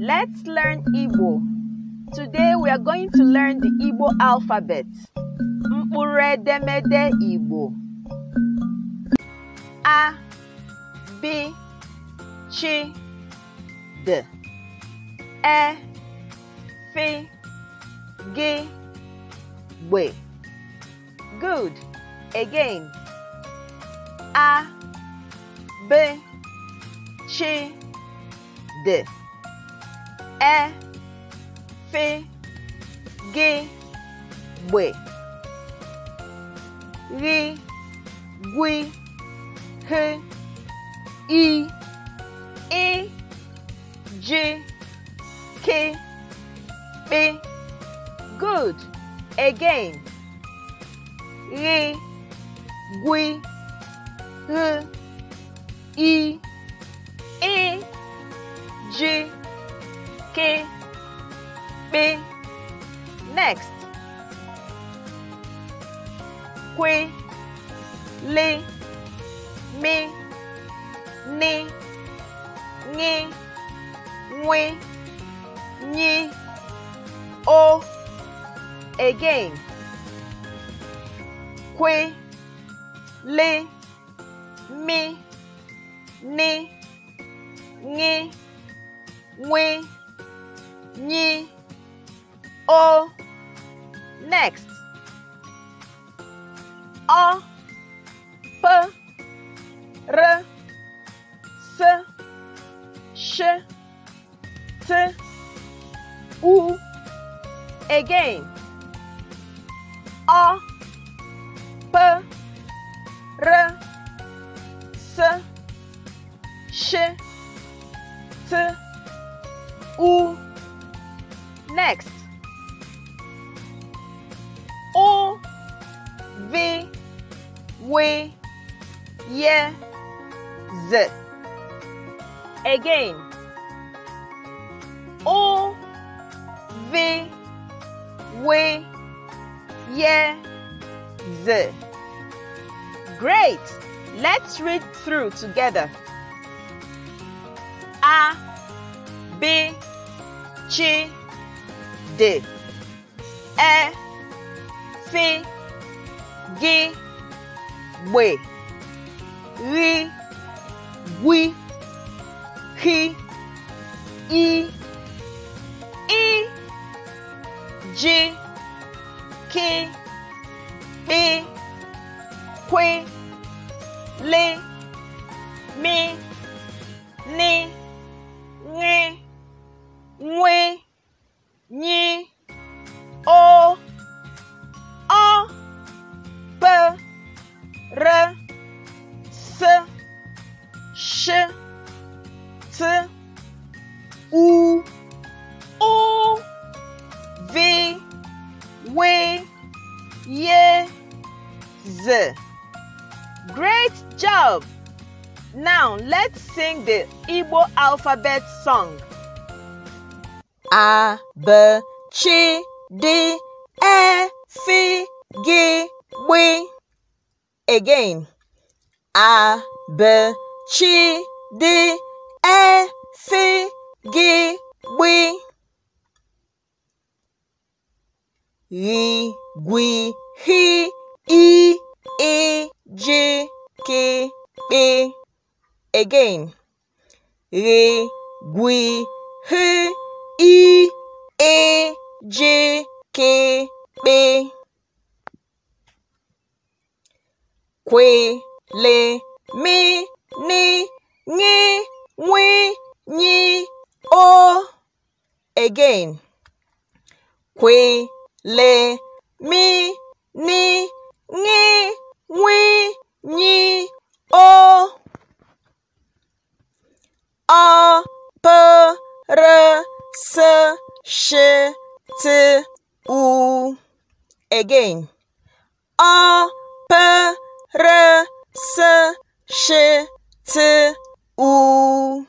Let's learn Igbo. Today we are going to learn the Igbo alphabet. Mkpụrụedemede Igbo. A, B, Ch, D, E, F, G, Gbe. Good. Again. A, B, Ch, D ẹ fe ge gbe gwi he good again ghi gwi he i kwe, le, mi, ne, nge, we, nye, o. Again. Kwe, le, mi, ne, nge, we, nye, o. Next. A, P, R, S, Sh, T, U. Again. A, P, R, S, Sh, T, U. Next. O, V, we, ye, z. Again, o, v, we, ye, z. Great! Let's read through together. A, B, we, ri, we, he, e, e, j, k, e, que, le, me, ne. t, sh, t, u, o, v, Great job! Now let's sing the Igbo alphabet song. A, B, Chi, D, E, F, G, B. Again. a b c d e f g W, r g e, e. h i e j k p again r g h i e j k p kwe Le mi ní ní wí yí o Again. Kwe le mi ní ní wí yí o. Ọ pẹ rẹ sẹ ṣe ti u. Again. Ọ pẹ rẹ sẹ. s, sh, t, u.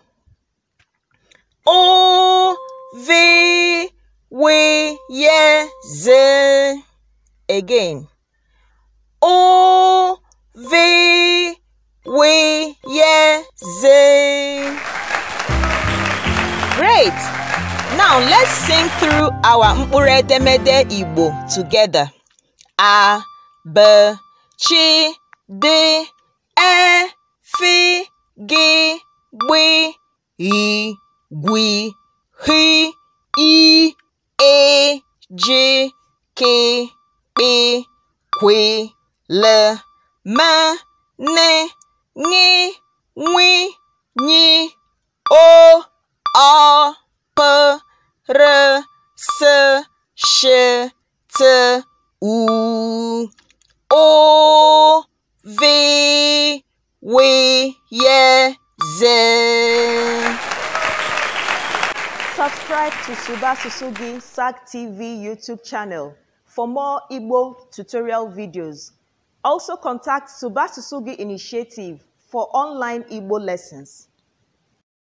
O, v, Again. O, v, Great! Now let's sing through our mkpụrụ edemede Igbo together. A, B, Chi, D, e, f, g, b, e, g, h, e, a, j, k, p, q, l, m, n, ng, ng, ny, o, o, p, r, s, sh, t, u, o, v. We Wiyeze. Subscribe to Suba Susugi SAG TV YouTube channel for more Igbo tutorial videos. Also contact Suba Susugi Initiative for online Igbo lessons.